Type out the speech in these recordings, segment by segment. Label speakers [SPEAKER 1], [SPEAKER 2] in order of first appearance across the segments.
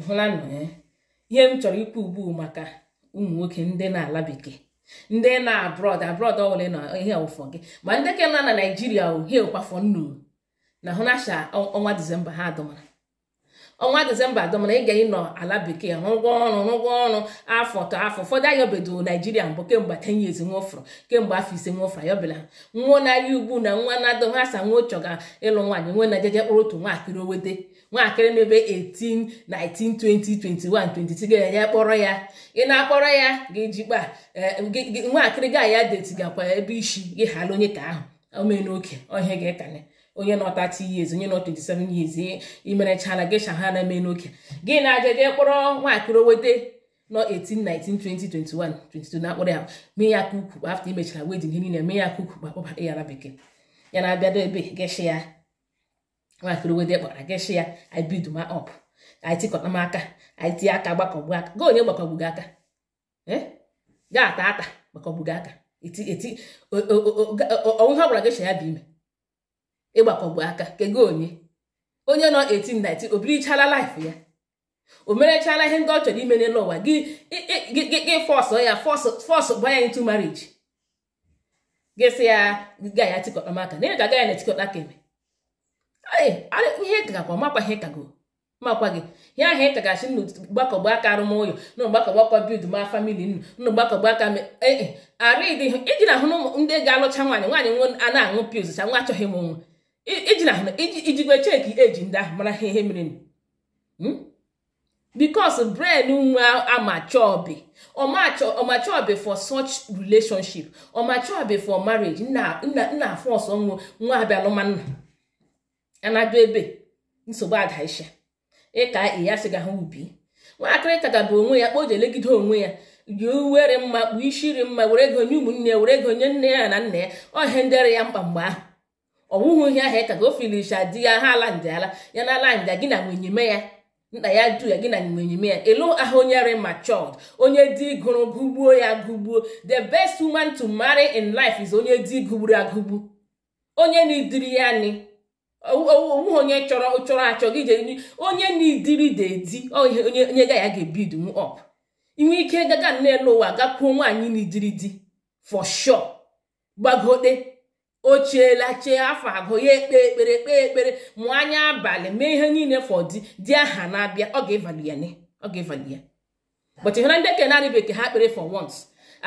[SPEAKER 1] ịhụlanụ ya eh? ihe m chọrọ ikwu ugbu maka ụmụ nwoke ndị na-ala bekee ndị na abrọd abrọd ọwụla na ihe ọwụfọ gị ma ndị nọ na naijiria ohie ụkwafọ nnu na hụnasha ọnwa disemba ha adụmara ọnwa disemba adọm na ị ga ịnọ ala bekee rụgwọ ọrụ rụgwọ ọrụ afọ tọ afọ ụfọdụ ayọbedo naijiria mbụ kemgbe ten years nwofụrụ kemgbe afọ ise nwofụrụ ayọbela nwa na-arị na nwa na-adọ ha sa nwa chọga ịlụ nwaanyị nwe na jeje kpụrụ otu nwaakịrị owete nwaakịrị n'ebe 18 19 20 21 26 ga-enye kpọrọ ya ị na-akpọrọ ya ga-ejikpa eh, nwaakịrị ga ya deti gakwa ebe isi gị ghara onye ka ahụ omee n'oke ọhịa ga-ekanye onye nọ 30 years onye nọ 27 years imerechala gesha ha na-eme n'oke gị na-aja jee kpọrọ nwaakịrị wete nọ 18 19 20 21 22 na akpọrọ ya mee ya ka ukwu afta imechara wedin ihe niile mee ya ka ukwu kpakpọbata ya na bekee ya na-abịado ebe gesha ya nwaakịrị wete kpọra gesha ya ibido ma ọp m aka aka gbakọgbu aka onye gbakọgbu gị aka ga ata ata gbakọgbu gị aka onwe ha gwara gesha ya bụ ime ịgbakọgbu aka kego onye onye nọ 1819 o birichala laịf ya o merechala ihe ndị ọ chọrọ ime n'ụwa gị gị fọsụ ya fọsụ banye ya ntu marriage gị sị ya ga ya tikọta maka na ị ga ya na tikọta ka eme ihe gakwa makwa ihe kago makwa gị ihe ahụ ị ka gachi nnu gbakọgbu aka arụmụlọ nụ gbakọgbu aka bid ma famili nnu nụ aka ee arụ ịdị iji na ahụ ndị ga-alụcha nwaanyị nwaanyị nwe a na-aṅụ pils cha nwa achọghị m nwa ijikwe cheki eji ndị ahụ mara ha ihe mere hmm? because brain nwa amachobi ọmachobi for such relationship ọmachobi for marriage nna nna fọs ọnwụ nwa abịalụmanna anado ebe nsogbu adaisha ịka ya sịga ha ubi nwatakịrị kagaba onwe ya kpoje elegide onwe ya yi uwere mma kpuo ishiri mma were ụmụnne ya were ego nne ya na nna ya ọhe ndere ya mkpa mgbe ahụ ọwụhụ ihe ahụ ka e o finisha ya ha ala ala ya na ala nja gị na ya nna ya du ya gị na nwenyime ya elu ahụ ma matured onye dị gụrụ gụgbuo ya gụgbuo the best woman to marry in life is onye dị gụgburu agụgbu onye na-ediri ya ni onwe onye chọrọ chọrọ achọ gị je onye na-ediri dedi onye ga ya ga-ebidu m ọp inwe ike gaga n'elu ụwa gakwuo nwaanyị na-ediri di for sure gbagote ochiela chee afọ abụọ ya ekpe ekpere kpee ekpere mụ anya abalị mee ihe niile fọdụ di aha na-abịa ọ ga-evalụ ya ọ ga-evalụ ya but ihe ndị ke na-arịba eke ha kpere for once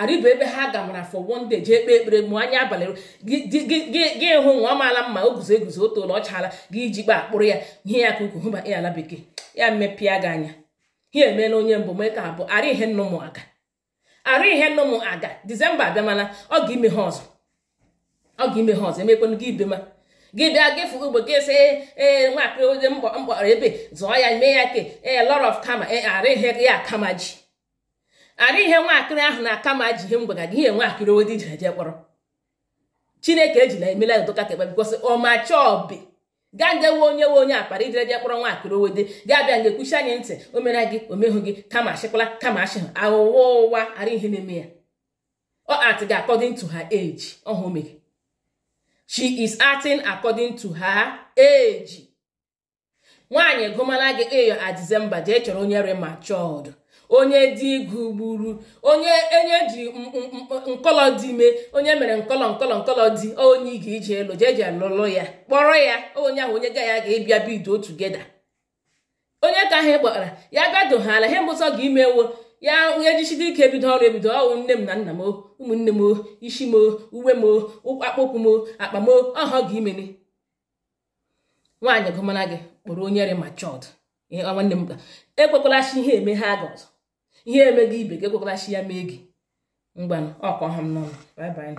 [SPEAKER 1] arịba ebe ha gamara for one day jee kpee ekpere mụ anya abalị gị hụ nwa amaala mma o guzo eguzo otu ụlọ ọ gị iji kpaa akpụrụ ya ihe ya ka ukwu hụba ị ala bekee ya mepịa gị anya ihe emeela onye mbụ mee ka abụọ arị ihe nnụmụ aga arị ihe nnụmụ aga dizemba abịamana ọ ga ime ha ọzọ ọ ga-ime ha ọzọ emekwanụ gị ma gị bịa gị fụgo ogbe gị sị ee nwakịrị mkpọ mkpọrọ ebe zụọ ya mee ya ke ee lot of kama ee ara ihe ya akama ji ara ihe nwakịrị ahụ na akama ji ihe ga gị ihe nwakịrị owedi jere jee kpọrọ chineke ejila emela doka kekpe bikosi ọmachọbi gaa ndewe onye nwe onye akpara ijere jee kpọrọ nwakịrị owede gaa bịa nge kwuchi anyị ntị o mere gị omehụ gị kama achịkwala kama achị ha aghụghọ ụwa ihe na-eme ya ọ atị gị according to her age ọhụ she is acting according to her age nwaanyị gụmala gị eyo a December jee chọrọ onye rematured onye dị igwu gburu onye enye ji nkọlọ dị ime onye mere nkọlọ nkọlọ nkọlọ dị onye ị ga-eji elu jee ji alụlụ ya kpọrọ ya onye ahụ onye ga ya ga-ebịa bido tugeda onye ka ha kpọtara ya ha ihe mbụsọ ga imewo ya onye jichide ike ebido ọrụ ebido ọwụ nne m na nna m ụmụnne m isi m uwe m akpụkpụ m akpa m ọhọ gị imene nwaanyị gụmara gị kpọrọ onye re machọd nwanne m e ihe eme ha gị ihe eme ibe gị ekwekwala ya mee gị mgbanụ ọkọ m